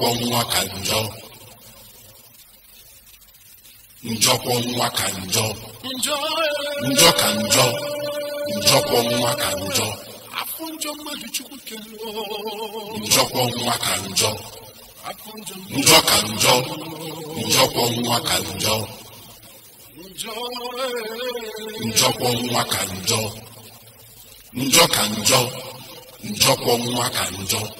njọkwọ nwa ka njọ njọkwọ nwa ka njọ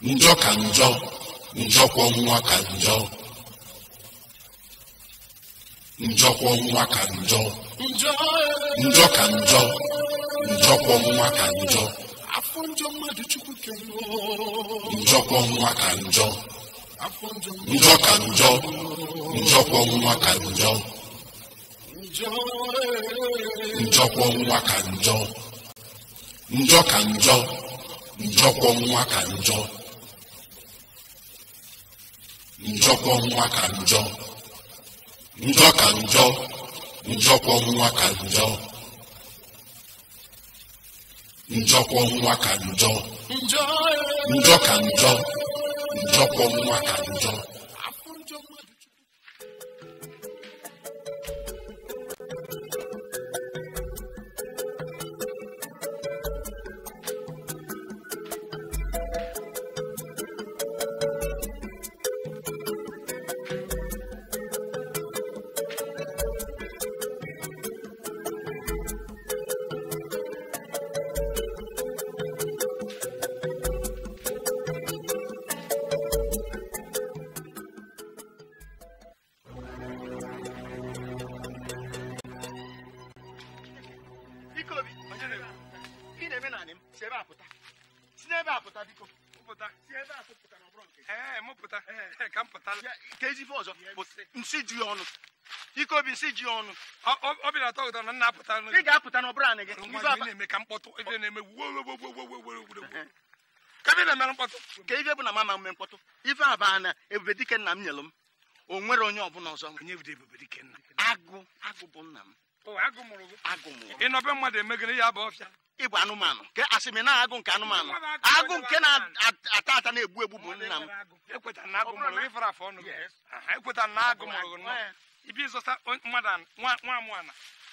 njọ ka njọ njọkwọ nwa ka njọ njọ njọkwa nwa ka njọ njọ ka njọ niile na-eme ife bụ na m ama mme mkpọtụ ife baa na ebube dike nna m nyelụ m o nwere onye ọbụla ọzọ agụ agụ bụ nna m ịbụ anụmanụ ke na agụ nke anụmanụ agụ nke na-ata ata na-egbu egbu bụ nna m ekwetara e na agụ mụrụ gị nwa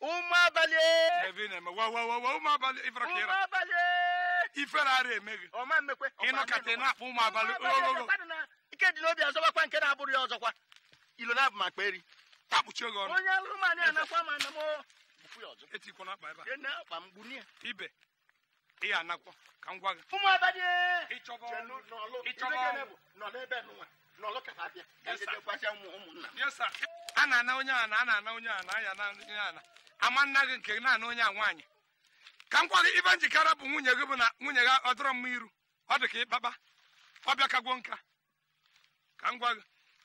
ụmụ abalị ụmụ abalị ifere ara eme gị ụmụ abalị ike dị n'obi azọbakwa nke na-abụrụ ya ọzọkwa ilo na abụ makpa eri takpuchi oge ọnụ onye ma na a ibe ya ka m ụmụ abalị ịchọba a na-ana onye a na-ana na onye ama nna gị nke naanị onye a nwaanyị ka m gwa gị ibe njikere bụ nwunye gị bụ na nwunye gị ọ dọrọ mma iru ọ dị ka ịkpakpa ọ bịakagwo nka ka m gwa gị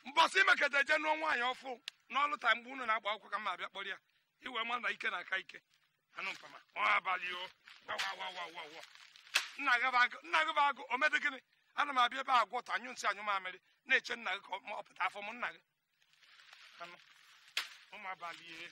mbọsị imeketa je nụọ nwaanyị ọfụ n'ọlụ ta mgbe unu na-agba akwụkwọ ka m abịa kpọrọ ya iwe ma na ike na-aka ike anụ mpama abalị o nna gị bụ agụ omedị gịnị ana m abịa ebe a ta anyụ nsị anyụ mamịrị na-eche nna gị ka ọ pụta afọ m nna gị ụmụ abalị e.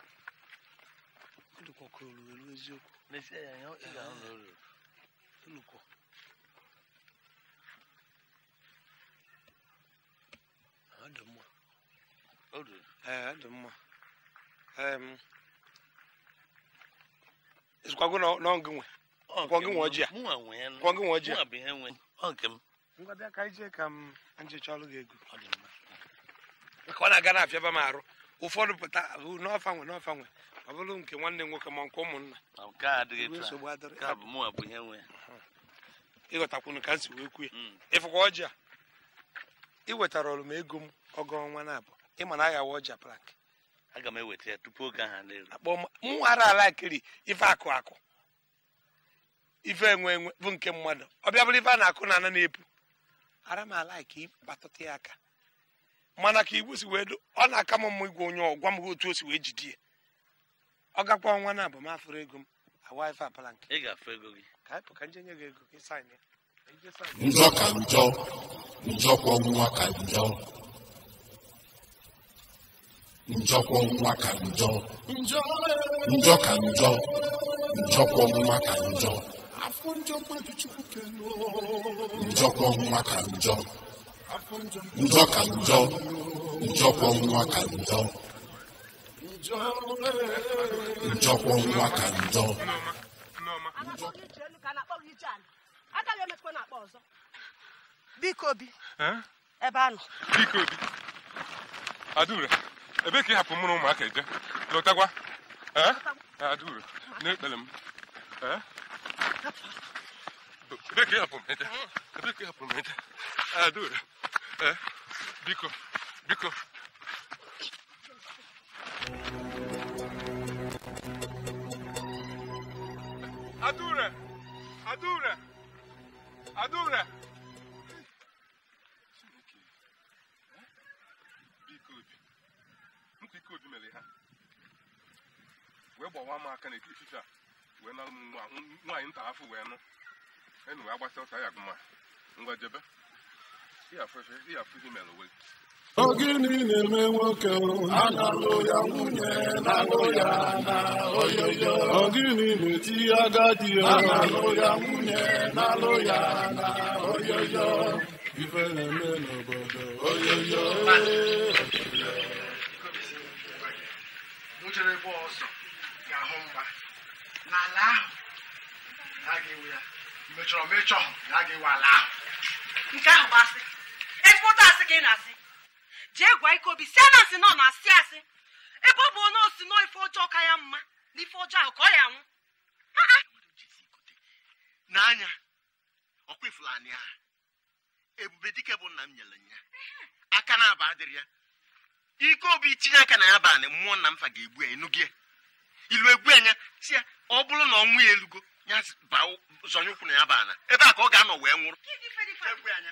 ulukọkọrọ olulu n'eziokwu na-esi ya ya ị ga-ahụ na olulu dị mma ọ dị nwe nwe ọjị a nwe ọjị a ọ m ka ije ka m ego ọ dị mma maka ọ na-aga na-afịaba m arụ ụfọdụ pụta n'ọfa nwe n'ọfa nwe ọ bụrụ nke nwanne nwoke ma nke ụmụnna ịghọtakwunu ka m si wee kwuo hmm. ịfụkwa ọjị a ị wetara ọrụ m ego m ọgọ ọnwa na-abụ ịma na aghawa ọja prak aga m eweta ya tupu oge aha n'elu m ara ala kiri ife akụ akụ ife enwe enwe bụ nke mmadụ ọbịa bụrụ ife a na-akụ na ana na-epu ara m ala ka ịkpatụta ya aka mana ka igwe si wee ọ na-aka m mma igwe onye ọ gwa m otu o si wee jide ya ọ gakwa ọnwa na abụm afụrụ ego m awa apala nke ka anyị pụka njenye gị ego gị sain ya njọ ka njọ ka njọ ka njọ njọ ka njọ ka njọ ka njọ njọ ka njọ njọkwọ nwa ka njọ Njọkwa nwa ka njọ. Agaghị emekwa na-akpọ ọzọ. Biko obi. Ebe a nọ. Biko obi. Adaure, ebe ka ị hapụ mụrụ ụmụaka eje? Lọtagwa. Adaure, n'ekpere m. Ebe ka ị hapụ m eje? Ebe ka ị hapụ m eje? Adaure, biko, biko. Adura! Adura! Adura! mere ha wee gbawa m aka n'etiti ifife a wee nalụ m nwaanyị nta afọ wee nụ enu agbasa ya gụma ngwa jebe ihe afọ ihe mere gịnị na-eme nwoke ana-alụ ya nwunye na-alụ ya na oyoyo ogini na-eti agadi alụ ya nwunye na-alụ ya na oyoyo ife na-eme n'obodo oyoyo ya ya ya nke ahụ bụ asị ezigbo asị ka na-asị jee gwa ike obi si na asị nọ na asị asị ebe ọ bụ onye osi nọ ife ọjọọ ka ya mma na ife ọjọọ ahụ ka ọ ya nwụ n'anya ọkwa ifulani a ebube dike bụ nna m nyere ya aka na aba adịrị ya ike obi tinye aka na ya banị mmụọ nna m fa ga-egbu ya enugie ilu egbu anya si ya ọ bụrụ na ọnwụ ya elugo ya zọnye ụkwụ na ya bana ebe a ka ọ ga-anọ wee nwụrụ egbu anya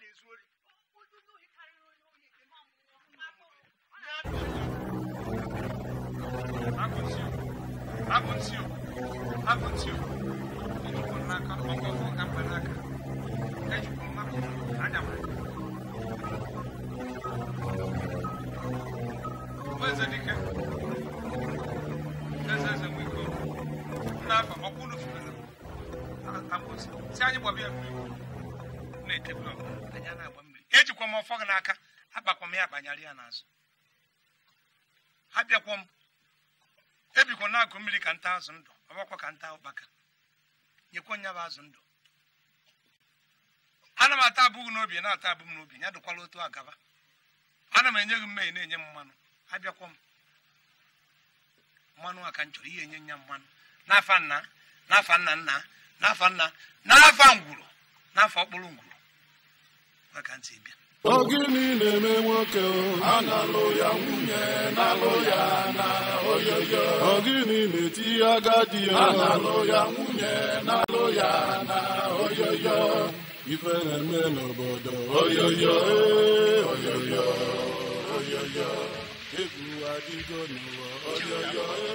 na ezu ori. Akunzio, akunzio, akunzio. Ejikwa n'aka, ọkọ ọkọ ka mba n'aka. Ejikwa n'aka, anya m. Eze dike, eze eze nwe ike ọrụ. N'afọ, ọkụ unu furu na. Akunzio, si anyị gbọbịa mmiri. Na-etebula anya na-agba mmiri ejikwa m ọfọ gị n'aka akpakwa m ya akpanyarị ya n'azụ abịakwa m ebikwa na-agụ mmiri ka nta azụ ndụ ọbakwa ka nta ụkpaka nyekwa nya bụ azụ ndụ ana m ata abụghị n'obi na-ata abụ m n'obi ya dụkwala otu agaba ana m enye gị mmehie na-enye m mmanụ abịakwa m mmanụ a ka m chọrọ ihe enye nya mmanụ n'afa nna n'afa nna nna n'afa nna n'afa ngwuru n'afa ọkpụrụ ngwuru maka ntị bịa ogini na-eme nwoke analụ ya nwunye nalụ ya na oyoyo ogini na-eti agadi ya analụ ya nwunye nalụ ya na oyoyo ife na-eme n'obodo oyoyo oyoyo oyoyo egwu adịgo n'ụwa oyoyo oyoyo.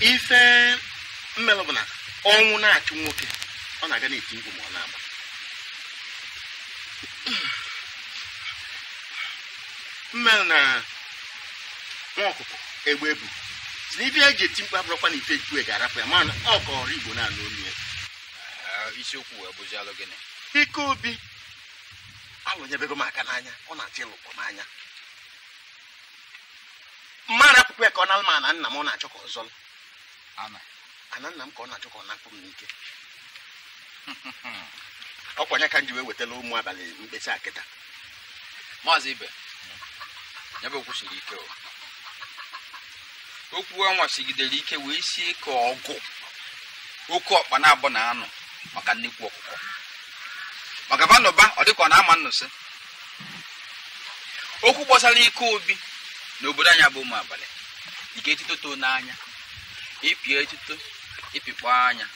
ife mmelụ bụ na ọnwụ na-achụ nwoke ọ na-aga na-eti ma ọ na-agba mmelụ na nwa ọkụkọ egbe bụ si na ife eji eti mkpu abụrụkwa na ife ejue ga-arapụ ya mana ọ kọrọ igbo na-anụ ya ah, isiokwu alụ anọnyebego m aka n'anya ọ na-atị ịlụkpọ n'anya mmadụ apụkwa ya ka ọ na ma ana nna m ọ na-achọ ka ọ zọl ana nna m ka ọ na-achọ ka ọ na-akpụ m n'ike ọkwa nya ka m ji wee wetala ụmụ abalị mkpesa kịta maazị ibe nyebe okwu siri ike okwu a nwachigidere ike wee sie ka ọgụ oke ọkpa na-abụ na anụ maka nnekwu ọkụkọ magaba n'ụba ọ dịka ọ na-ama nnụsị okwu gbasara ike obi n'obodo anyị bụ ụmụ abalị ike etuto too n'anya ịpị etuto ịpịkpọ anya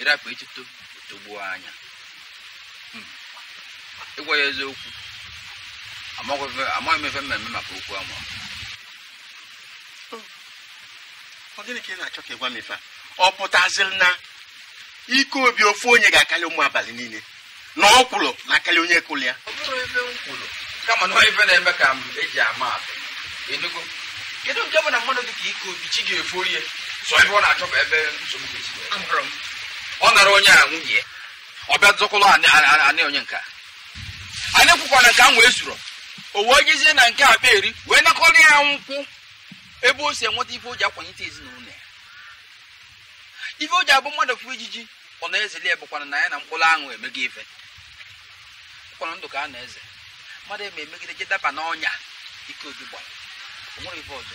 ịrapụ etuto togbuo anya hmm. ịgwa ya eziokwu amaghị m efe mmemme maka okwu ama ọ gịnị ka ị na-achọ ka ịgwa m ife a ọ pụtaziri na ike obi ofu onye ga-akarị ụmụ abalị niile na ọ kwuru na akarị onye kụrụ ya kama na ife na-eme ka m eji ama enugo kedu nke bụ na mmadụ dị ka ike obi chi ga-efu orie sọ ebe ọ na-achọ bụ ebe nsogbu ga-esi ọ nara onye a nwunye ọ bịa dụkwụlọ anị onye nka anyị kwụkwara nke ahụ wee zuru o wee jezie na nke akpa eri wee nakọrọ ya nkwụ ebe o si enweta ife o ji akwanyete ezinụlọ ya ife o ji abụ mmadụ fụ ejiji. ọna eze lie bụkwara na anyị na mkpụrụ aṅụ emego ife ụkpọrọ ndụ ka a na-eze mmadụ eme emegide je daba n'ọnya ike obi gbara onwere ife ọzọ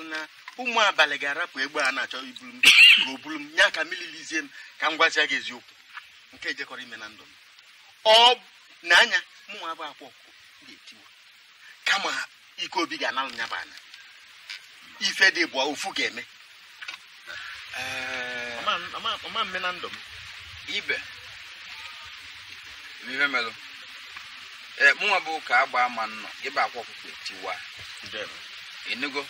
ọ na ụmụ abalị ga-arapụ egbe a na-achọ iburu m ka o buru m ya ka mililizie m ka m gwazia gị eziokwu nke ejekọrọ ime na ndụ m ọ na anya mụnwa abụ ga-etiwa kama ike obi ga-analụ nyaba anya ife dị bụ ofu ga-eme ee ọma mme na ndụ m ibe ihe melụ ee mụnwa bụ ka agba ama nnọ ịba akwa ọkpụkpụ tiwa enugo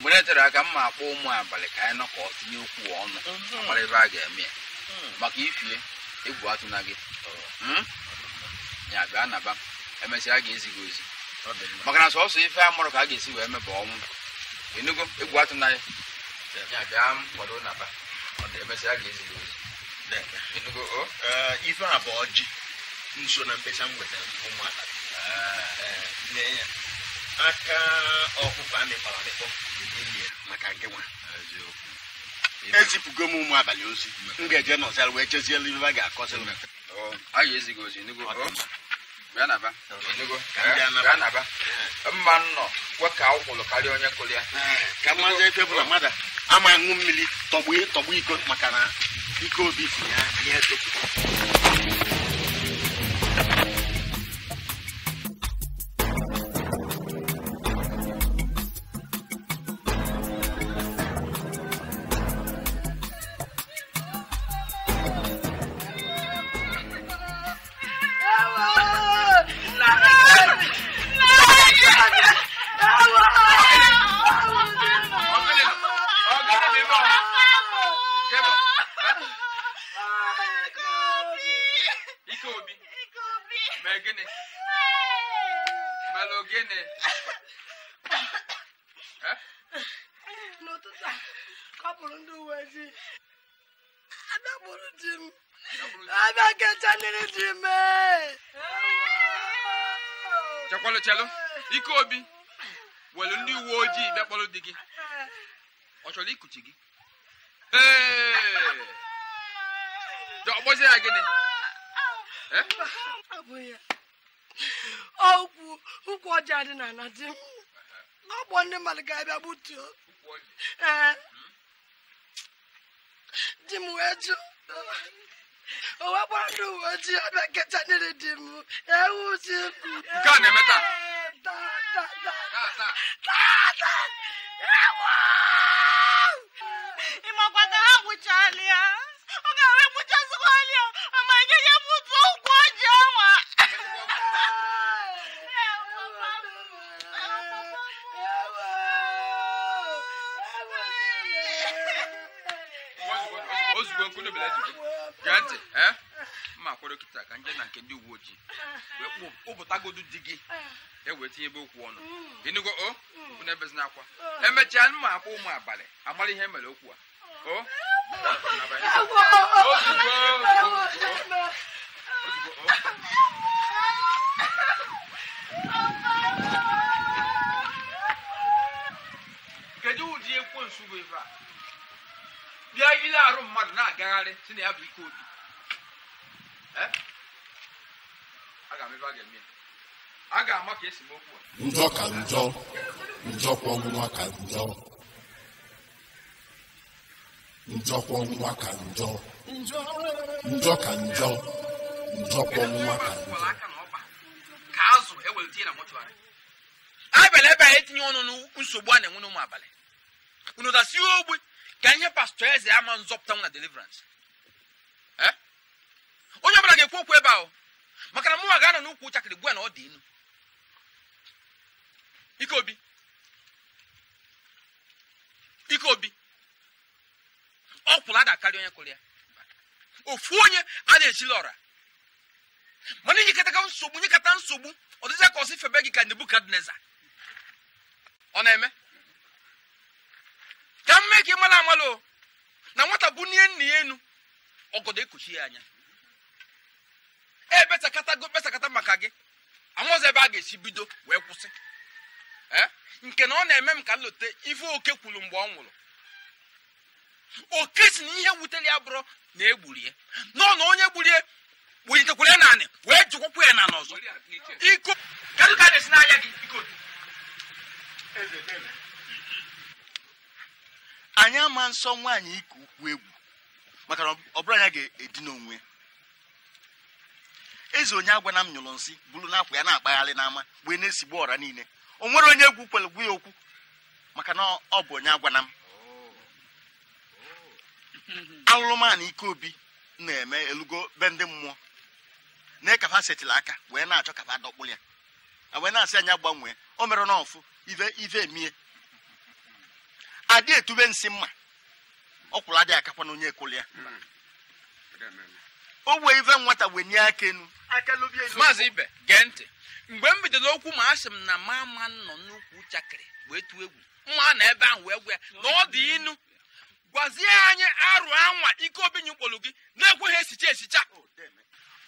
mgbe e tere aka mma akpọ ụmụ abalị ka anyị nọ ka ọ tinye okwu ọnụ mhm. mara ebe a ga-eme ya mhm. maka ifie egwu atụ na gị hmm? ya gaa naba emesịa a ga-ezi ozi maka na sọsọ ife a mụrụ ka a ga-esi wee meba ọnwụ enugo egwu atụ na ya ya gaa kwado naba Eh, ife a bụ ọjị nso na mkpesa m ụmụaka ah, eh, aka ọkụkọ amịkpọrọ amịkpọ maka nwa ezipụgo e m ụmụ abalị ozi m ga-eje n'ọzara wee chezie a ga-akọsịrị eh, mma nnọ kwe ka ọ kwụrụ karịa onye kụrụ ya ka mmazi bụla mmadụ ama ṅụ mmiri tọgbu tọgbu iko maka na iko obi si ya ihe ikuchi gị ọgbọzie ya gịnị ụkwụ na ọgbọ ndị mmadụ ga-abịa gbutuo ee di m wee jụ ndị uwe ojii ọbịa kecha niri di m ebele ji gee ntị ee eh? mma kwere kịta ka nje na nke ndị uwe ojii wee kpụpụtagodu di gị ewee tinye ebe okwu ọnụ ịnụgo o oh? na ebezi n'akwa emechaa mma akwa ụmụ abalị agbara ihe mere okwu a o oh? kedu ụdị ekwensu bụ ebe a mmiri arụ mmadụ na-agagharị si na ya bụ ike obi ebe a ga ka njọ ka ka njọ ka njọ njọ ka ka njọ ọnụ na-enwe n'ụmụ abalị unu dasi ogbe ka ihe pastọ eze ama nzọpụta m na deliverance eh? onye ọbụla ga-ekwu okwu ebe ahụ maka na mụnwa ga-anọ n'ukwu nchakịrị gwa na ọ dị inu ike obi ọ kwụrụ ada onye kwụrụ ya ofu onye a na-echili ọra mana iji kata nsogbu nye kata nsogbu ọ ka ọsị febe gị ka nebukadneza ọ na-eme ka m mee ka mara amala na nwata bụ n'ihe nna ya enu ọgọdọ ekochi ya anya ebesakatago besakata maka gị amụzọ ebe a ga-esi bido wee kwụsị e, nke na ọ na-eme m ka lote ife oke kwuru mgbe ọ nwụrụ oke si na ihe wutere ya bụrụ na egburie nọ na onye gburie welitekwara ya naanị wee jụkwakwa ya na n'ọzọ iko ka m ka esi n'anya gị iko anyị ama nsọ nwaanyị ike ukwu egwu maka na ọ anya ga-edina onwe eze onye agwana m nyụrụ nsị bụrụ na akwa ya na-akpagharị n'ama wee na-esigbu ọra niile o nwere onye egwu kwelegwu ya okwu maka na ọ bụ onye agwana m alụrụmanụ ike obi na-eme elugo be ndị mmụọ na kafa setịla aka wee na-achọ kafa dọkpụ ya wee na-asị anya gbanwee o mere n'ọfụ ive ive mie adị etube nsị mma ọkwụrụ adịghị aka na onye ekoli ya o wee ive nwata wee nye aka enu maazị ibe gee ntị mgbe m bidoro okwu ma asị m na ma ma nọ n'ukwu chakịrị wee tụọ egwu mma na ebe ahụ wee gwa ya na ọ dị inu gwazie anyị arụ anwa ike obi kpolu gị na-ekweghị esicha esicha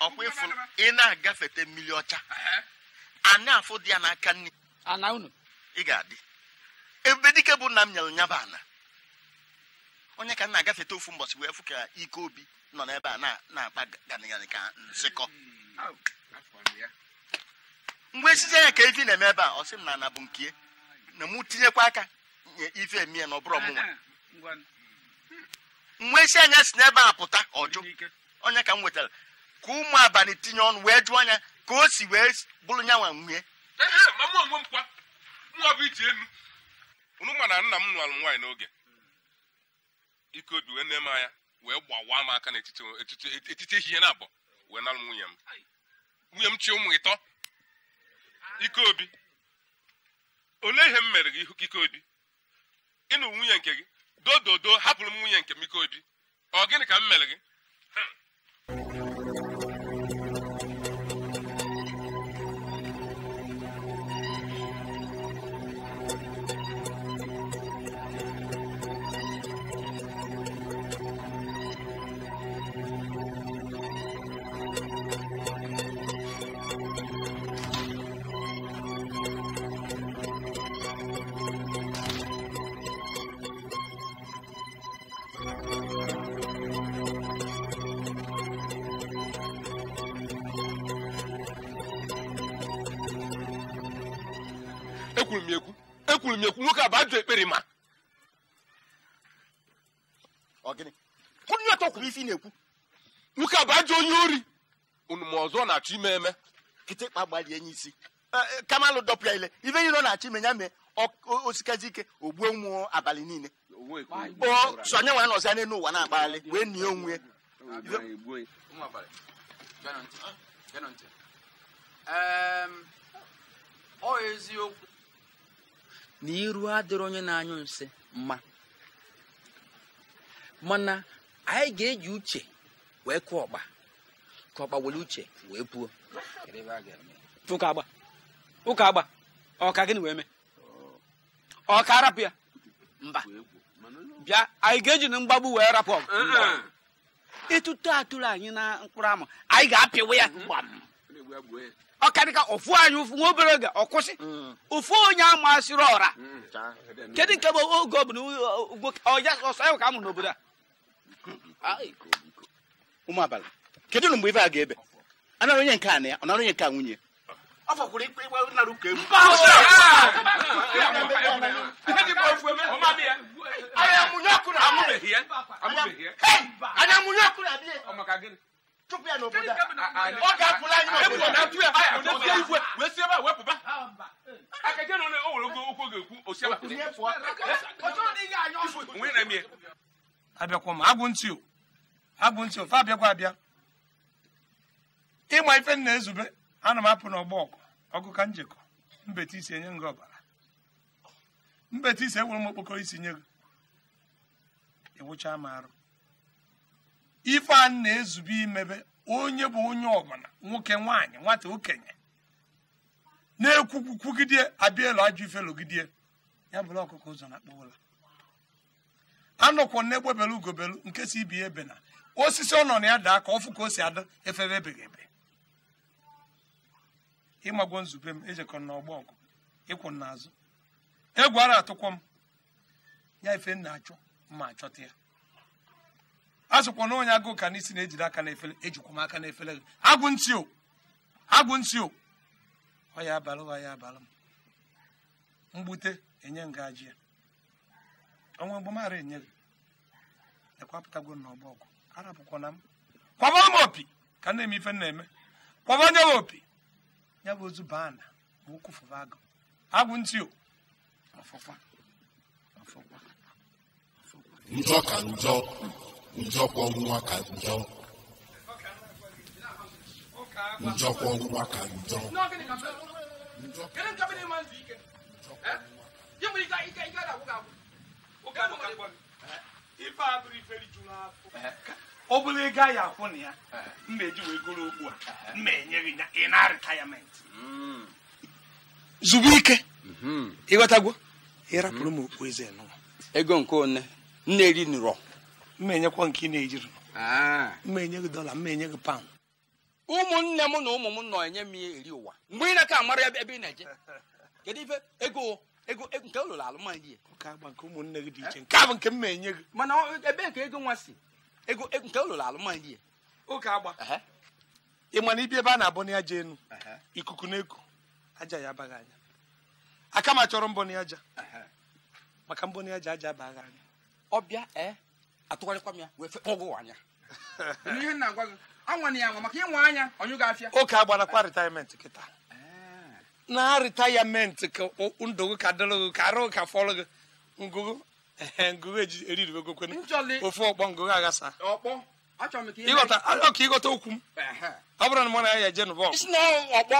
ọkwa ịfụ ị na-agafete mmiri ọcha a na-afụ dị ya n'aka nne ị ga-adị ebe dike bụ nna m nyere nyaba ana onye ka m na-agafeta ofu mbọchị wee fụ ka ike obi nọ n'ebe a na-akpa ganịganị ka nsịkọ mgbe esizie ya ka ife na-eme ebe a ọ sị m na ana bụ nke na mụ tinyekwa aka nye ife emi ya na ọbụrụ ọmụnwa mgbe esi anya si n'ebe a pụta ọjụ onye ka m nwetara ka ụmụ abalị tinye ọnụ wee jụọ anya ka o si wee bụrụ nyanwa nwunye unu mana na nna m nụrụ nwaanyị n'oge ike dị wee na-eme anya wee gbawaa m aka n'etiti ehihie na abụọ wee nalụ nwunye m nwunye m chi ụmụ ịtọ ike obi olee ihe m mere gị ike obi ịnụ nwunye nke gị dododo hapụrụ m nwunye nke m ike obi ọ gịnị ka m mere gị ekwuru m ekwu ekwuru m ekwu nwoke a bụ ekpere ma onye ọtọ kwuru isi na-ekwu nwoke a bụ onye ori unu ọzọ na-achọ ime eme kịtịkpa gbalie nye isi e, kamalụ dọpụ ile ibe nyere ọ na-achọ ime ya mee osikazi ike ogbuo nwụọ abalị niile nọzi anya n'ụwa na wee nie onwe ehm, ọ eziokwu na iru adịrị onye na-anyụ nsị mma mana anyị ga-eji uche wee kụọ ọgba ka ọgba were uche wee puo ụka agba ụka agba ọka gịnị wee mee ọka arapụ ya mba bịa anyị ga-eji na mgbagbu wee rapụ ọgụ ịtụtụ atụrụ anyị na mkpụrụ amụ anyị ga-apịwa ya ọkarịka ofu anyị nwa obere oge ọkwụsị ụfụ hmm. onye amasịrị ọra hmm, kedu nke bụ oge bụ ọsọ ahụ ka amụ n'obodo a ụmụ abalị kedu na mgbe ife a ga-ebe anara onye nke a na ya ọ nara onye nke a nwunye ọ fọkwuru ikpe ikpe nara anya mụnye ọkụ na abịa chụpụ ya n'obodo a ọ ga-apụla anyị n'obodo wee si ebe a wepụba na ga ọ abịakwa m agwụ ntị agwụ ntị ofe abịakwa abịa ịma ife nna ezube ana m apụ n'ọgbọ ọgụ ọgụ ka njikọ mbete isi enye nga ọbara mbete isi enwere m okpokoro isi nye gị ịwụcha m arụ ife a na-ezube imebe onye bụ onye ọbụla nwoke nwaanyị nwata okenye na-ekwukwugide abịa elu ajọ ifelogide ya bụrụ ọkụkọ ụzọ na akpọwụla anọkwọ na-egbebelu ugobelu nke si ibi ebe na osisi ọ nọ na ya daa ka ọfụ ka o si ada efebe ebeghị ebe nzube m ejekọ n'ọgbọ ọgụ ịkwụ n'azụ egwu atụkwọ m ya ife m na-achọ mma achọta ya a sịkwa na onye agụụ ka n'isi na-ejide aka n'efere ejikwa m aka n'efere gị agwụ ntị o agwụ ntị o ọ ya abalị ọ ya abalị m mgbute enye ngaji ya ọnwa mgbamara enye gị ekwapụtagwo m n'ọgba ọgụ arapụkwa na m kwaba m opi ka na-eme ife na-eme kwaba onye m opi ya bụ ozu baa na ma ụkwụ fụba agụ agwụ ntị o ọfụkwa ọfụkwa ọfụkwa njọ ka njọ njọkwa ọnwụnwa ka njọ njọkwa ọnwụnwa ka njọ ọ bụrụ ego a ya akwụ na ya mma eji wee goro a mma ya ị na ike ịghọtagwo ịrapụrụ m ego nke one nne eri nụrọ mma enyekwa nke ị na-ejiri mma enye gị dọla mma enye gị paụnd ụmụnne m na ụmụ m nọ enye m ihe eri ụwa mgbe ị na ka amara ebe ị na-eje kedu ife ego ego nke ụlụrụ alụmdị ya nke ụmụnne gị eh? dị iche nke a bụ nke m na-enye gị mana ebe nke ego nwa si ego nke ụlụrụ alụmdị ya oge agba ị mana ibi ebe a na-abụ na aja enu ikuku na-eku aja ya abaghị anya aka chọrọ mbọ mbọnị aja maka mbọ mbọnị aja aja abaghị anya ọbịa ee eh? atụgharịkwa m ya wee ọgụ anya ihe nna agwa gị anwana ya nwa maka ịnwa anya onye ga-afịa oke agbarakwa ritayament kịta eh. na ritayament ka ndụ gị ka dịrị gị ka arụ ka fọrọ gị ngụgụ eh, ngụgụ eji eriribegokwen ofe ọkpọ ngụgụ aghasa ịghọta ọka ịghọta okwu m ọ bụrụ na mụ na ya eje nụbọ ọkpọ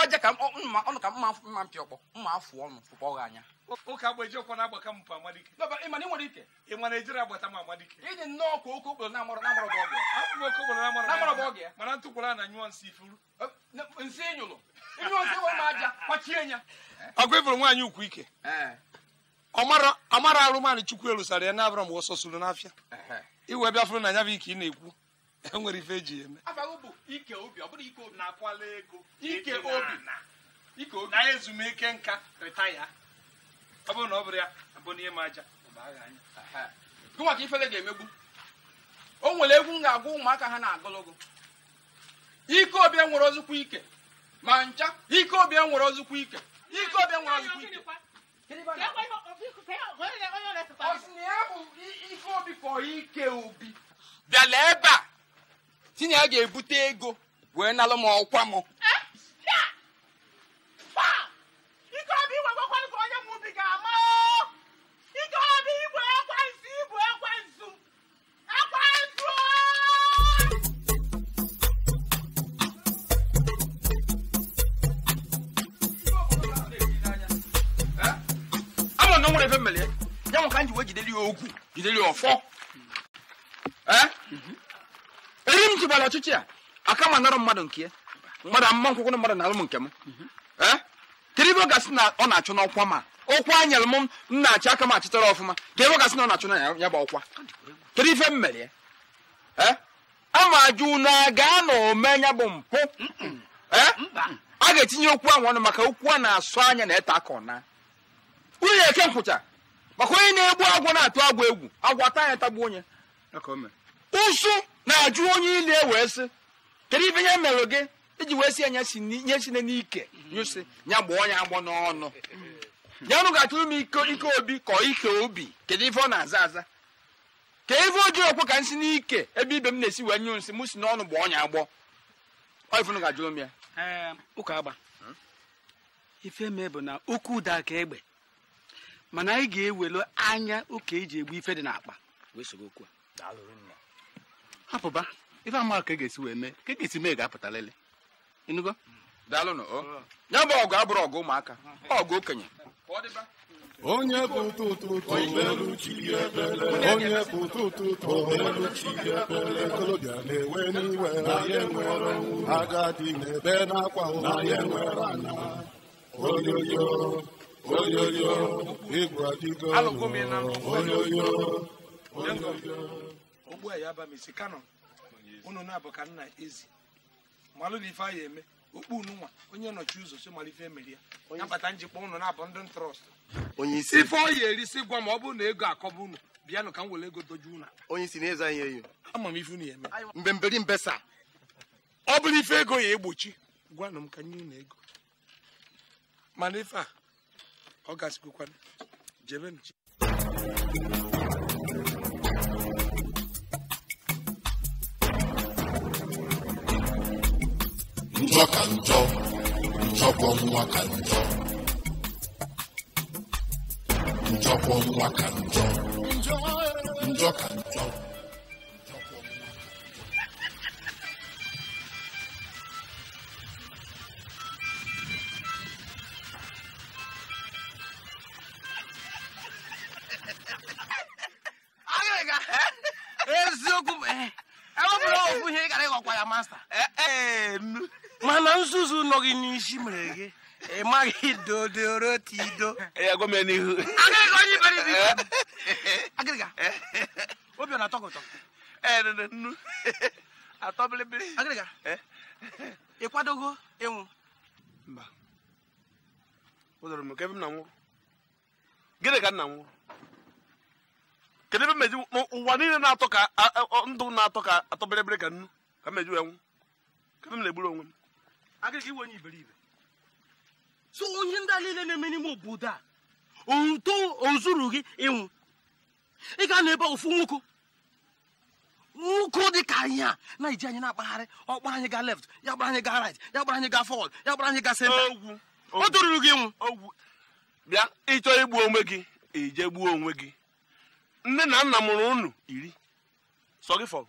ọja eh? ka mma mma mpị ọkpọ mma afụ ọnụ fụkpọ gị anya ụka agbajiokwa na-agbaka m amadike ịmana ị nwere ike ịma Naịjirịa agbata m amadike iji nnọọ kwa oke okporo na-amara na-amara bụ ọgụ akpụkpọ oke okporo na-amara bụ ọgụ ya mana ntụkwara na nyụọ nsị ifuru nsị enyolo ịnyụọ nsị wee ma aja kwachie ya ọgụ ịbụrụ e nwaanyị ukwu ike ọmara arụmanụ chukwu elu erusara ya na-abụrụ m ọsọ suru n'afịa iwe bịa fụrụ na ya bụ ike ị na-ekwu enwere ife eji eme ike obi ọ ike obi na ike obi na ezumike nka retaya ọ bụrụ na ọ bụrụ ya abụ n'ihe ma aja gị ka ifele ga-emegbu o nwere egwu m ga-agwa ụmụaka ha na-agụlụgụ ike obi nwere ozukwu ike ma ncha ike obi nwere ozukwu ike ike obi nwere ozukwu ike ike obi ike obi bịala ebe a tinye ya ga-ebute ego wee nalụ m ọkwa m ife mere ya nwa ka m ji wee jideli ya ogwu jidere ya ọfọ eri m jigbara ọchịchị a aka ma narụ mmadụ nke ya mmadụ amụma nkwụkwụ mmadụ na alụm nke m kedu ebe ọ gasị na ọ na-achụ n'ọkwa ma ọkwa nyere m m na-achị aka m achịtara ọfụma ka ebe ọ gasị na ọ na-achụ na ya bụ ọkwa kedu ife m mere ya ama ajụ na gaa na ome ya bụ mpụ a ga-etinye okwu ahụ ọnụ maka okwu a na-asụ anya na ete aka ọna nwunye eke nkwụcha maka onye na-egbu agwọ na-atụ agwọ egwu agwọ taa ya tagbu onye ụsụ na-ajụ onye ile wee sị kedu ibe ya merụ gị iji wee si ya nye sine n'ike nyụsị ya gbaa onye agbọ n'ọnụ ya nụ ga-atụrụ m ike obi ka ike obi kedu ife ọ na-aza aza ka ife ojii okwe ka nsị si n'ike ebe ibe m na-esi wee nyụ nsị m si n'ọnụ gbaa ọnya agbọ ifunu ga-ajụrụ m ya ụka agba ife mee bụ na okwu ụda ka egbe mana anyị ga-ewelu anya ụka eji egbu ife dị n'akpa hapụba ife ama ka e ga-esi wee mee ka e ga-esi mee ga-apụta lele ịnụgo daalụnụ ya bụ ọgụ abụrụ ọgụ ụmụaka ọgụ okenye onye bụ tụtụtụ obelu chi ebele onye bụ tụtụtụ obelu chi ebele okolobịa na-ewe n'iwe na ya enwere agadi na ebe na-akwa ụra ya enwere anya oyoyo onyoyo igwe adịgo onyoyo onyoyo ogbu a ya aba m isi kano unu na-abụ ka nna ezi malụ na ife a ya eme okpu unu nwa onye nọchi ụzọ so mara ife ya nabata njikwa unu na-abụ ndị ntrọst ife ọ ya erisi gwa ma ọ bụrụ na ego akọba unu bịanụ ka m were ego dojuo unu onye isi na-eze anyị eyo. ama m ife unu ya eme mbemberi mbesa ọ bụrụ ife ego ya egbochi gwanụ m ka nye unu ego mana ife a August Kukwan, Jevin. Njọ ka njọ, njọkwọ nwa ka njọ. Njọkwọ nwa ka njọ, njọ ka njọ. masta eh, eh, mana nzuzu nọ gị n'isi mere gị ị maghị dodorotido eh. obiọna atọgọtọ ịnwụ gịnị ka nna m kedu ebe meji ụwa niile na-atọ ka ndụ na-atọ ka atọ ka nnu ka m eju enwu ka m na-egburu onwe m agaghị iwe onye iberibe so onye ndị a niile na-eme n'ime obodo a ozuru gị ịnwụ ị ga na ebe ofu nwoke nwoke dị ka anyị a na iji anyị na-akpagharị ọkpa anyị ga left ya gbara anyị ga right ya gbara anyị ga forward ya gbara anyị ga senta ọ toruru gị nwụ bịa ịchọ igbu onwe gị ije gbuo onwe gị nne na nna mụrụ unu iri sọ gị fọrọ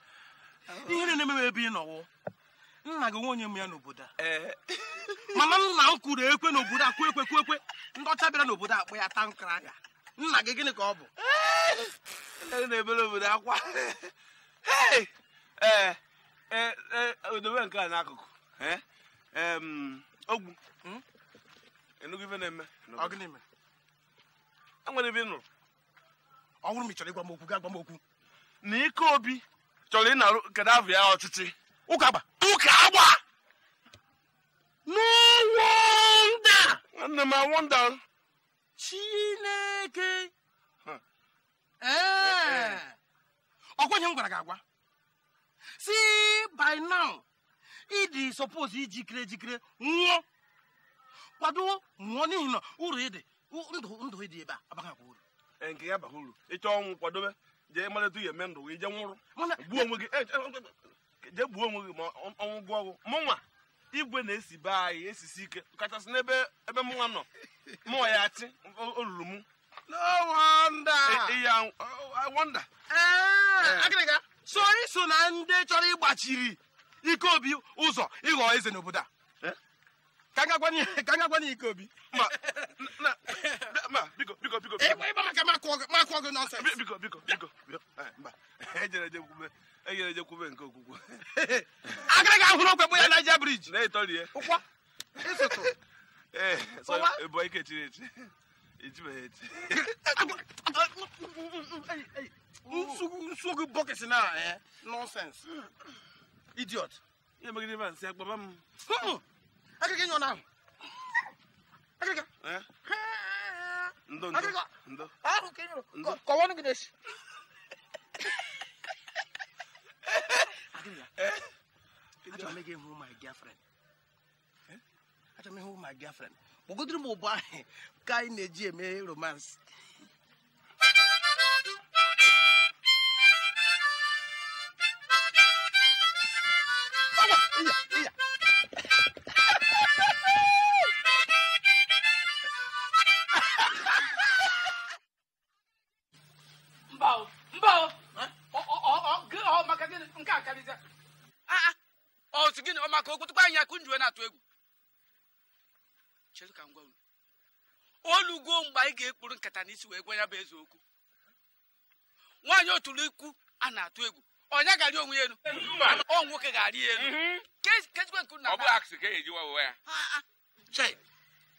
ihe na na-emewe ebe ị nọwụ nna gị nwe onye m ya n'obodo a eh. mana nna m kwuru ekwe n'obodo a kwe ekwe kwe ekwe ndọcha bịara n'obodo akpụ ya ta nkara aga nna gị gịnị ka ọ bụ eh. na-ebere obodo akwa ee eh, odobe nke a n'akụkụ ogwu hmm? enugwu ife na-eme enwere ebe ị nụrụ ọ bụrụ m ị chọrọ ịgwa m okwu ga gwa m okwu na ike obi chọrọ ịnarụ Gaddafi ya ọchịchị ụka gba. ụka agba no wonder nwanne m wonder chineke ee eh. eh, eh. m gwara gị agwa si by now ịdị suppose ijikere ejikere nwụọ kwado nwụọ n'ihi na uru ịdị ndụ ndụ ịdị ebe a abaghị akwa uru nke ya abaghị uru ịchọ ọnwụ kwadobe jee malata ihe eme ndụ gị jee nwụrụ gbuo onwe gị eh, eh, eh, jee gbuo onwe gị ma ọnwụ gụọ ọgwụ mụnwa igwe na-esi be anyị esisi ike kachasị n'ebe ebe mụnwa nọ mụnwa ya achị olulu m so anyị so na ndị chọrọ ịgbachiri ike obi ụzọ ịghọ eze n'obodo a ka ngagwana ike obi ịgba biko biko biko nke okwukwe agara gị ahụrụ okwe bụ ya naija briji na-etorie ụkwa ịsụtụ ee ike chiri echi ejibeghị echi nsogbu bọkịtị na nọnsens idiot ihe megide ma nsị akpaba m não. aqui na. Não não. aqui Akiriki. Não. Ah kiri é Kɔwɔ ni Aqui si. Akiriki. Ati make him my girlfriend. Ati make who my girlfriend. Bogodiri mo ba kai neji eme romance. Yeah, yeah. ka okwutukwa anyị akụ njuwe na-atụ egwu chedu ka ngwa gwa unu olugo mgbe anyị ga-ekpuru nkata n'isi wee gwa ya bụ eze okwu nwaanyị oturu ikwu a na-atụ egwu onye ga-arị onwe ya elu ọ nwoke ga-arị ya elu mhm. kesikwe na e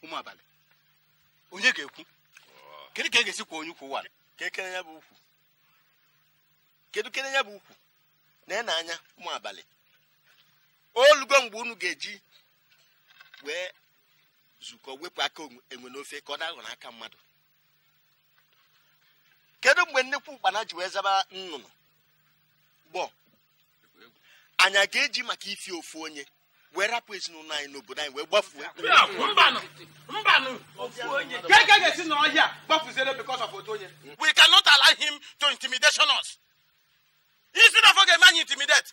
ụmụ abalị onye ga-ekwu kedu ka e ga-esi kwa onye ukwu ụwa ka ekele ya bụ ukwu kedu kele ya bụ ukwu na ị na anya ụmụ abalị olugo mgbe unu ga-eji wee zukọ wepụ aka enwe n'ofe ka ọ dahụ aka mmadụ kedu mgbe nnekwu mkpana ji wee zaba nnụnụ bọ anya ga-eji maka ifi ofu onye wee rapụ ezinụlọ anyị n'obodo anyị wee gbafuo we cannot allow him to intimidation us isi na ga-eme anyị intimidate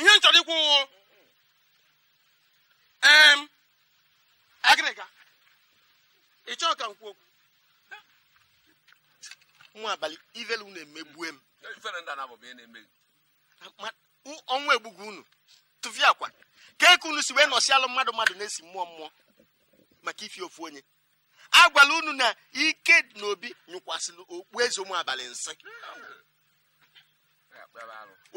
ihe m chọrọ ikwu em agịrịga ị chọọ ka m kwuo okwu nwa abalị ivelu unu emegbue m ọnwa egbugu unu tụvi akwa ka eke unu si wee nọsi mmadụ mmadụ na-esi mmụọ mmụọ maka ifi ofu onye agwala unu na ike na obi nyụkwasịrị okpueze ụmụ abalị nsị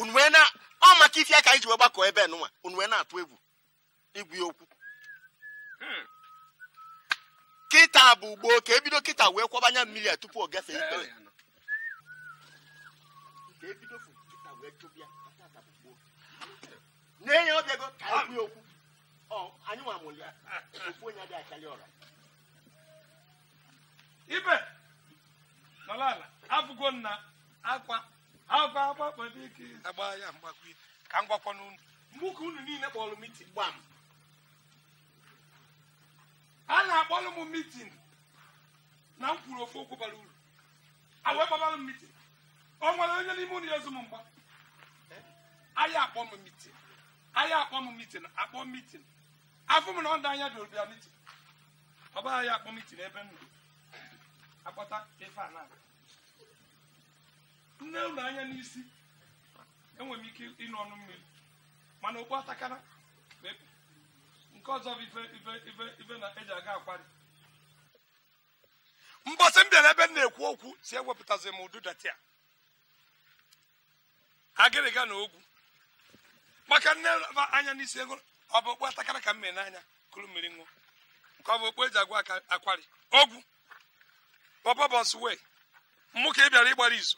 unu wee na ọ maka ife aka iji wee gbakọ ebe nụnwa unu wee na-atụ egwu igwu ya okwu hmm. kịta bụ ugboo ka ebido kịta wee kwabanya mmiri a tupu ọ gafee ikpere na-enye ọbịago ka e anyị e ya okwu anyị nwa amụlị ya okwu onye adịghị akarị ọra ibe nọrọ ala abụgo nna akwa ike ya ka mbụ ka unu niile kpọrọ mitin gba a na-akpọrọ m mitin na m kwuru ofe okwu bara uru awee m mitin ọ nwere onye n'ime unu ya ezu m mgba ahịa akpọ m mitin ahịa akpọ m mitin akpọ mitin afọ m na ọ dị anya dị obia mitin ọ bụ akpọ mitin ebe m akpọta ife a na-aga nne unu anya n'isi enwere m ike ịnụ ọnụ mmiri mana okpu atakara nke ọzọ bụ ife na eji aga akwari mbọsị m bịara ebe m na-ekwu okwu si ewepụtazi m ududati a agịrịga na ogwu maka nne anya n'isi ego ọ bụ okpu atakara ka m mee n'anya kụrụ mmiri ṅụọ nke ọ bụ okpu eji agwa akwari ogwu bọbọbọs wee mmụ ka ị bịara ịgbara izu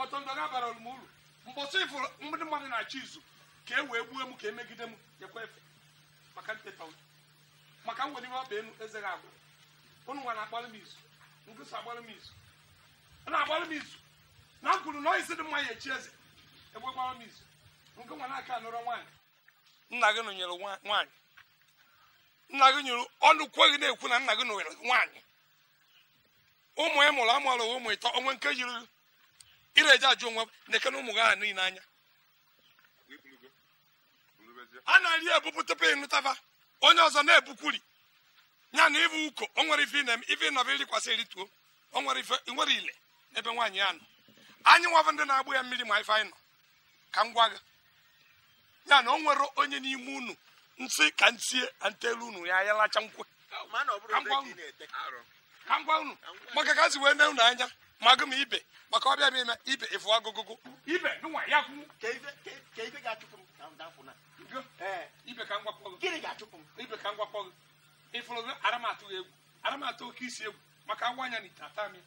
ọtọndọga abaralụ m uru mbọsị ịfụrụ ndị mmadụ na-achọ izu ka e wee gbuo m ka emegide m nyekwa efe maka nteta ụzọ maka m nwere ihe ọba enu eze ga agwụrụ ụnụ nwa na-agbalị m izu ngụsị agbalị m izu na-agbalị m izu na kwuru na isi dị mma ya echi eze egbe gbara m izu nke nwa na-aka anụrọ nwaanyị nna gị nụnyere nwaanyị nna gị nyụrụ ọnụ kweghị na-ekwu na nna gị nụnyere nwaanyị ụmụ ya mụrụ amụrụ ụmụ ịtọ onwe nke yiri ireje ajụ onwe nekena ụmụ gị aha niile anya a na-eri ebupụ tupu ịnụtaba onye ọzọ na-ebukwuri ya na ịbụ uko o nwere ife na-eme ife ịnọba irikwasị erituo o nwere ile ebe nwaanyị ya nọ anyị nwabụ ndị na-agbụ ya mmiri ma ife anyị nọ ka m gwa gị ya na o nwere onye n'ime unu nsị ka ntie ntelu unu ya ya lacha nkwe ka m gwa unu maka ka si wee ne unu anya magụ m ibe maka ọbịa m ime ibe ịfụ agụgụgụ ibe ya ka ga na ibe ka ga-achụpụ ibe ka ifuru ara oke isi egwu maka ngwa anya na ite m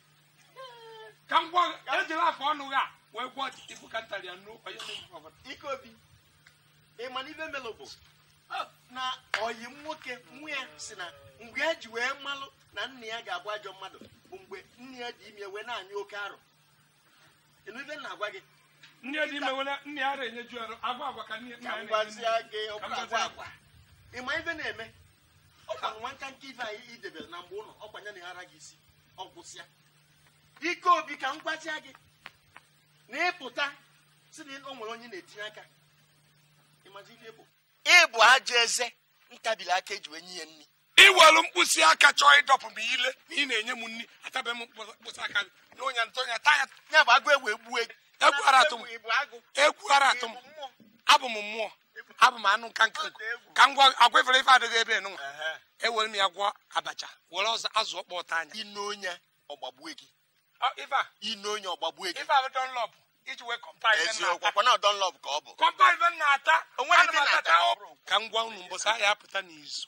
ka m gwọ ejela afọ ọnụ a wee gwọ ibu ka ntarị ya na ị ibe oyi m nwoke nwa ya si na mgbe e ji wee malụ na nna ya ga-abụ ajọ mmadụ bụ mgbe nne ya dị ime e wee na-anyị oke arụ ife na-agwa gị nne dị ime e wee nne ya ara enyeju arụ agwa agwa ka nne ya na-enye gị agwa agwa ịma ife na-eme ọkwa nwata nke ife anyị idebere na mgbe ụlọ ọkwa ya na-ara gị isi ọ gwụsịa ike obi ka m gị na ịpụta si na o nwere onye na-etinye aka ịmazi ife bụ ịbụ ajọ eze ntabili aka eji wee nye ya nri iwelu mkpịsị aka chọọ ịdọpụ m ile ma ị na-enye m nri atabeghị m mkpịsị aka gị na onye ntọnya taya ya bụ agụ egwu egbu egwu ara atụ m abụ m mmụọ abụ m anụ nka nka ka ngwa gwa agwa ifere ife adịghị ebe enụnwa ewere e m ya gwọ abacha were ọzọ azụ ọkpọ ọta anya ine onye ọgbagbue gị ine onye ọgbagbue gị iji wee kọmpa ibe na-ata ka ngwa gwa unu mbọsị ahịa apụta n'izu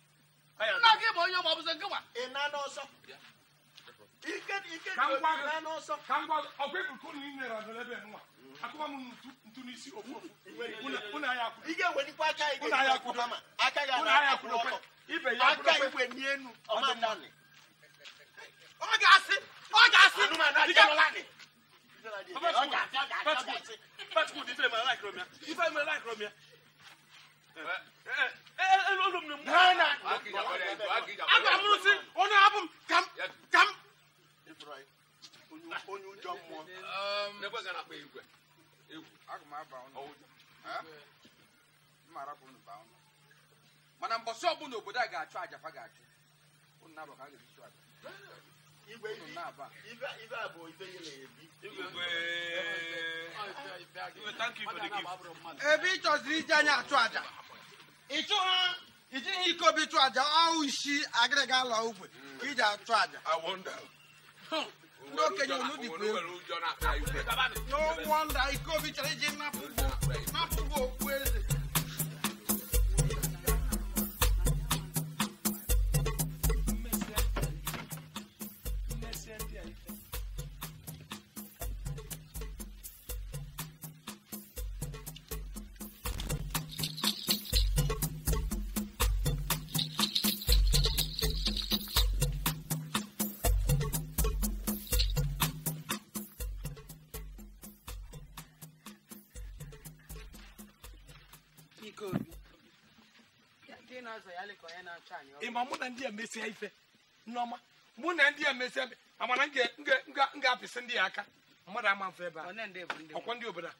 nna gị bụ onye ma ọ bụzi nkịwa ị na n'ọsọ ike ike dị onye na n'ọsọ ka ngwa ọgwụ ebuko na inyere adịrị ebe nwa akụwa m ntu ntu n'isi ofu ofu ụna ya akwụdo ike welikwa aka igwe ụna ya akwụdo ma aka ga na akwụdo ọkọ ibe ya akwụdo aka igwe n'enu ọma nani ọ ga-asị ọ ga-asị ike lọlanị Fetch good, if I'm like Romeo. If I'm like Romeo. m na mgbe ha aga m onye abụ m ka m ka m onye ụjọ mmụọ mana mbọsị obodo a ga-achụ ga-achụ ebe ị chọziri iji anya achụ aja iji ihe iko chụ aja ọwụ isi agịrị ala ogwe ka iji achụ aja ndị okenye unu dị bụ egwu chọrọ iji napụgo okpu eze mesie ife nneọma mụ na ndị a mesie amana m ga ndị ya aka mmadụ ama mfe ebe a ọkwa ndị obodo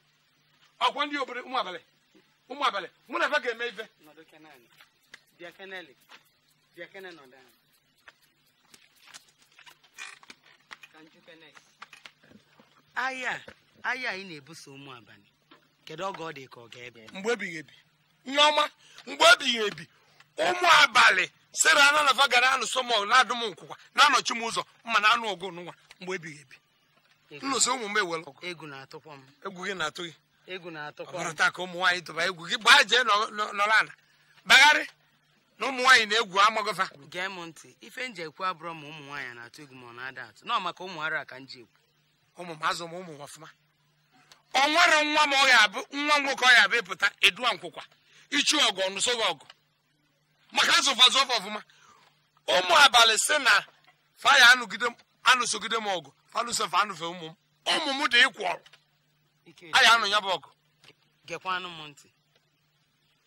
ndị obodo ụmụ abalị ụmụ abalị mụ na ebe ga-eme ife ahịa ahịa na-ebuso ụmụ abalị kedu oge ọ dị ka ọ ga-ebe mgbe ebighị ebi nneọma mgbe ebi ụmụ abalị sera ana na vaga na-anụ sọmọl na adụm nkwụkwa na-anọchi m ụzọ mma na anụ ọgụ n'ụwa mgbe ebighị ebi nnụsị ụmụ m ewere ọgụ egwu na-atụkwa m egwu gị na-atụ gị egwu na-atụkwa m ọbara taa ka ụmụ nwaanyị tụba egwu gị gbaa jee nọrọ ala bagharị na ụmụ nwaanyị na-egwu amaghịfa gee m ntị ife nji ekwu abụrọ ma ụmụ nwaanyị na-atụ egwu ma ọ na-ada atụ na maka ụmụ ara ka nji ekwu ụmụ m azụ m ụmụ ọfụma ọ nwere nwa m ọ ya abụ nwa nwoke ọ ya abụ ịpụta eduwa nkwụkwa ichu ọgụ ọnụsọ ọgụ maka azụfazụ ọfọ ọfụma ụmụ abalị si na faya anụsogide m ọgụ fanụsofe anụfe ụmụ m ụmụ m dị ịkwụ ọrụ anyị anụ ya bụ ọgụ gekwanụ m ntị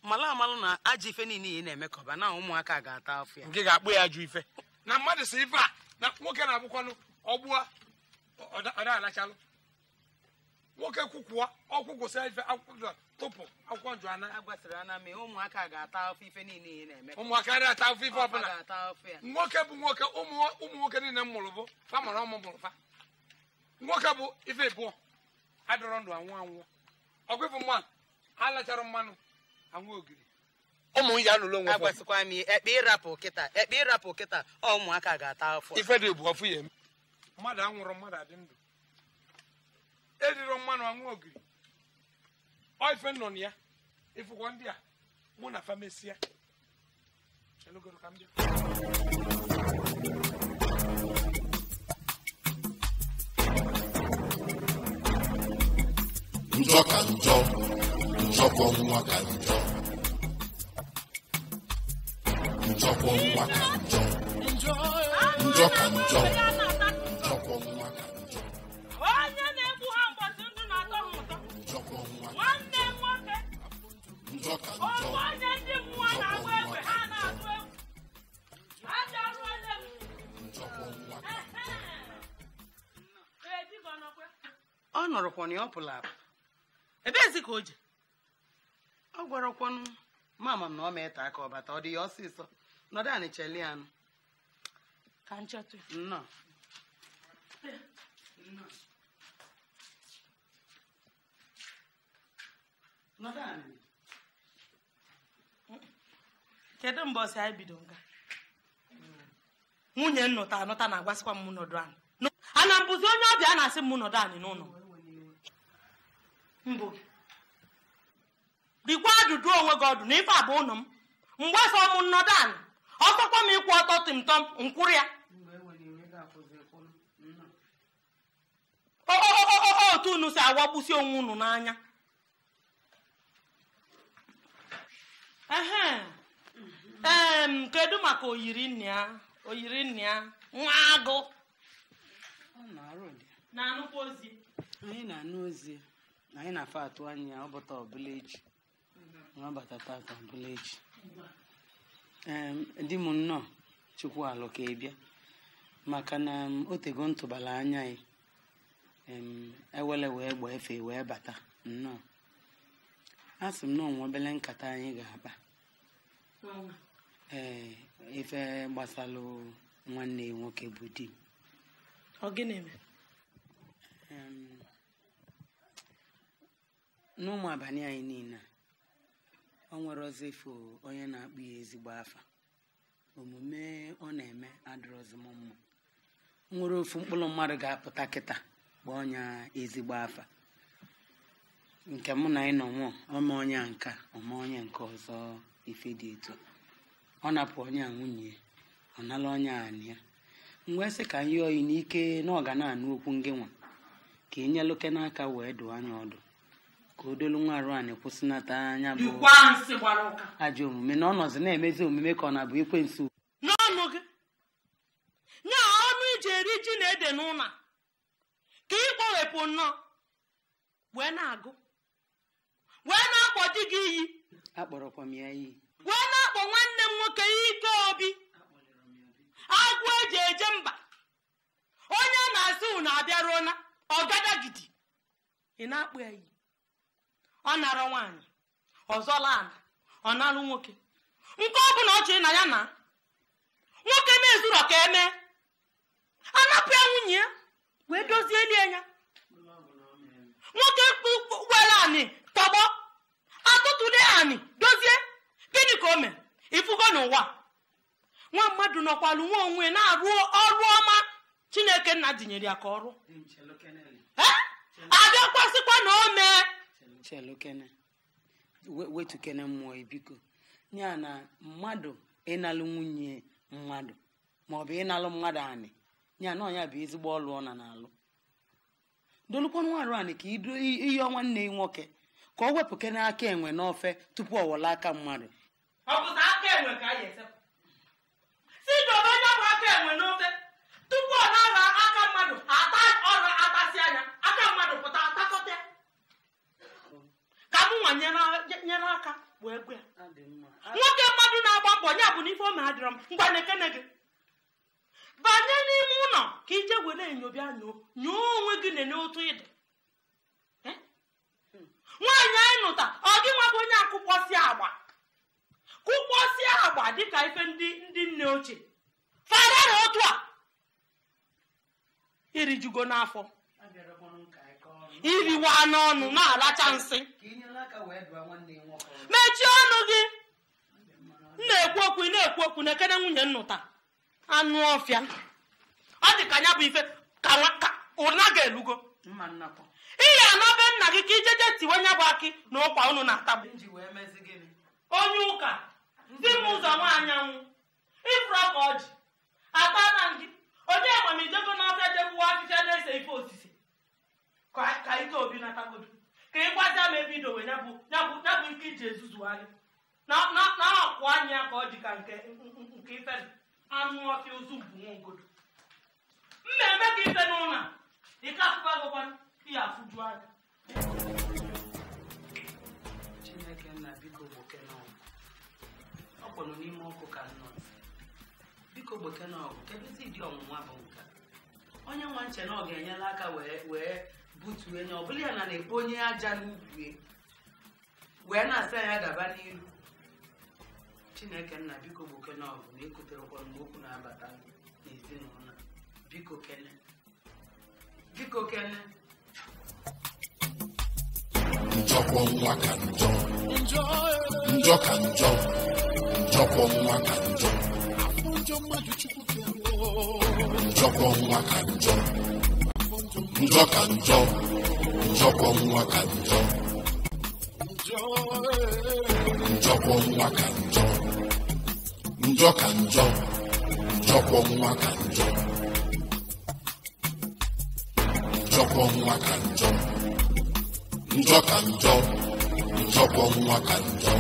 amalụ na aja ife niile ị na-emekọba eme na ụmụaka ga-ata afọ ya nke ga-akpụ ya ajọ ife na mmadụ si ife a na nwoke na-abụkwanụ ọgbụa ọ da nwoke kwụkwụọ ọkwụkwụ sa ife akwụkwọ tụpụ akwụkwọ nju ana agwasịrị ana mee ụmụaka ga-ata afọ ife niile na-eme ụmụaka adịghị ata afọ ife ọbụla nwoke bụ nwoke ụmụ nwoke niile m mụrụ bụ fa mụrụ ọmụ mụrụ fa nwoke bụ ife ịbụọ adọrọ ndụ anwụ anwụ ọgwụ ịfụ mmanụ alachara mmanụ anwụ ogiri ụmụ ya lụrụ onwe agwasịkwa m ekpe ịrapụ kịta ekpe ịrapụ kịta ụmụaka ga-ata afọ ife dị bụ ọfụ ya eme mmadụ anwụrụ mmadụ adị ndụ edirọ mmanụ anwụ ogiri ife nọ na ya ịfụkwọ ndị a mụ na famesia elogoro ka m bịa njọ ka njọ njọkwọ nwa ka njọ njọkwọ nwa ka njọ njọ ka njọ rụkwana ya ọ pụrụ apụ ebeezi ka o je ọ gwarakwanụ mama m na ọ ma ete aka ọbata ọ dị ya ọsịsọ nọdụ anị cheli anụ ka nnọọ nọdụ kedu mgbe ọsị anyị bido nga nwunye nnụta anụta na-agwasịkwa m nọdụ anị ana mbụzi onye ọbịa a na-asị m nọdụ anị n'ụlọ mbụ rikwa ajụjụ onwe gị ọdụ na ife abụ ụnụ m mgbe afọ m nnọdụ anị ọtọkwa m ịkwụ ọtọ tịmtọm nkwụrụ ya otu unu si awagbụsi onwe unu n'anya kedu maka oyiri nne ya oyiri nne ya nwa agụ na-anụkwa ozi anyị na-afọ atụ anya ọbata ọbụla echi nwa mhm. bata tata ọbụla echi di m nnọọ chukwu alụ ka ịbịa maka na otego ntụbala anya ya ewele wee gba efe wee bata nnọọ a sị m na onwe obele nkata anyị ga-akpa ee eh, ife gbasalụ nwanne nwoke bụ di m n'ụmụ abalị anyị niile ọ nwere ọzọ onye na-akpụ ya ezigbo afa omume ọ na-eme adịrọzim mma nwere ofu mkpụrụ mmadụ ga-apụta kịta kpọọ ya ezigbo afa nke mụ na ịnọ nwụọ ọma onye nka ọma onye nke ọzọ ife dị etu ọ napụ onye a nwunye ọ nala onye anị ya mgbe sị ka anyị oyi n'ike na ọ ga na-anụ okwu ngịnwa ka e nyelụke n'aka wee dụọ anya ọdụ ka odolu nwa arụ anyị kwụsịnata anya bụ ajọ omume na ọnọzi na-emezi omume ka ọ na-abụ ekwensu n'ọnụ gị nye ọnụ iji eri ji na ede n'ụlọ ka ị kpọwepụ nnọọ wee na-agụ wee na-akpọ di gị iyi iyi wee na-akpọ nwanne m nwoke ike obi agụ eji eje mba onye na-asị unu abịaruola ọgadagidi ị na akpụ ya iyi ọ narọ nwaanyị ọzọla ala ọ narụ nwoke nke ọ bụla ọ chịrị na ya na nwoke mezuru ka eme anapụ ya nwunye ya wee dozie lie ya nwoke were anị tọgbọ atụtụle anị dozie gịnị ka o mere ifugo n'ụwa nwa mmadụ nọkwalụ nwa onwe na-arụ ọrụ ọma chineke nna dinyere ya ka ọrụ abịakwasịkwa na o mee chelukene wetukene mmụọ biko ya na mmadụ ịnalụ nwunye mmadụ maọbụ ịnalụ mmadụ anị ya na ọnya bụ ezigbo ọlụ ọ na na-alụ dolukwanụ arụ anị ka ihe ọnwa nne nwoke ka o wepụkene aka enwe n'ofe tupu ọ wọla aka mmadụ tupu ọ na-ara aka mmadụ ata ọrụ atasị anya aka mmadụ pụta mụnwa nyere aka wee nwoke mmadụ na-agba mbọ ya bụ na ome adịrọ m ngwa gị banye n'ime ụlọ ka ije were enyo bịa nyoo nyoo onwe gị nene otu ịdị nwaanyị anyị nụta ọ gị nwabụ onye akụkpọsi agba kụkpọsi agba dịka ife ndị ndị nne ochie fara otu a irijugo n'afọ iriwa n'ọnụ na-alacha nsị mechie ọnụ gị na-ekwu okwu na-ekwu okwu na-ekene nwunye nnụta anụ ọfịa ọ dị ka ya bụ ife ka ụna ga-elugo iyi anabe nna gị ka ijeje tiwe nya bụ akị na ụkwa unu na-atagbu onye ụka di m ụzọ nwaanyanwụ ifuru ọka ọjị ata na gị onye amamijego n'ọfịa jegbuwa ahịhịa na-ese ife osisi ka ike obi natagodu ka ị gwazi ma ebe idowe nyabụ bụ ike iji ezuzugharị na-akwụ anya ka ọ dị ka nke ife anụ ọfịa ozu mbunwongodo mmemme ka ife n'ụlọ ike afụfa gụkwana ihe afụju anya chineke nna biko gbokenọgụ ọ kpọrọ n'ime ọkụ ka nnọ biko gbokenọgụ kedụzi dị ọnwụnwa bụ nka onye nwa nche na ọ ga-enyela aka wee buturu enye ọ bụla ya na na-ebu onye aja n'ubi wee na-asa ya daba n'iru chineke nna biko gbokenye ọgụ na ekoterekwara m okwu na-abata n'ezinụlọ biko kene biko kene njọkwọ nwa ka njọ njọ ka njọ njọkwọ nwa ka njọ njọkwọ nwa ka njọ njọ ka njọ njọkwọ nwa ka njọ njọkwọ nwa ka njọ njọ ka njọ njọkwọ nwa ka njọ njọkwọ nwa ka njọ njọ ka njọ njọkwọ nwa ka njọ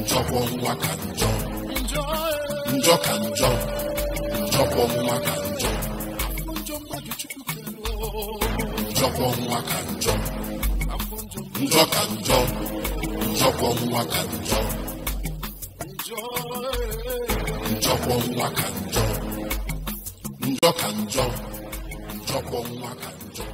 njọkwọ nwa ka njọ njọ ka njọ njọkwọ nwa ka njọ njọkwọ nwa ka njọ njọ ka njọ njọkwọ nwa ka njọ njọkwọ nwa ka njọ njọ ka njọ njọkwọ nwa ka njọ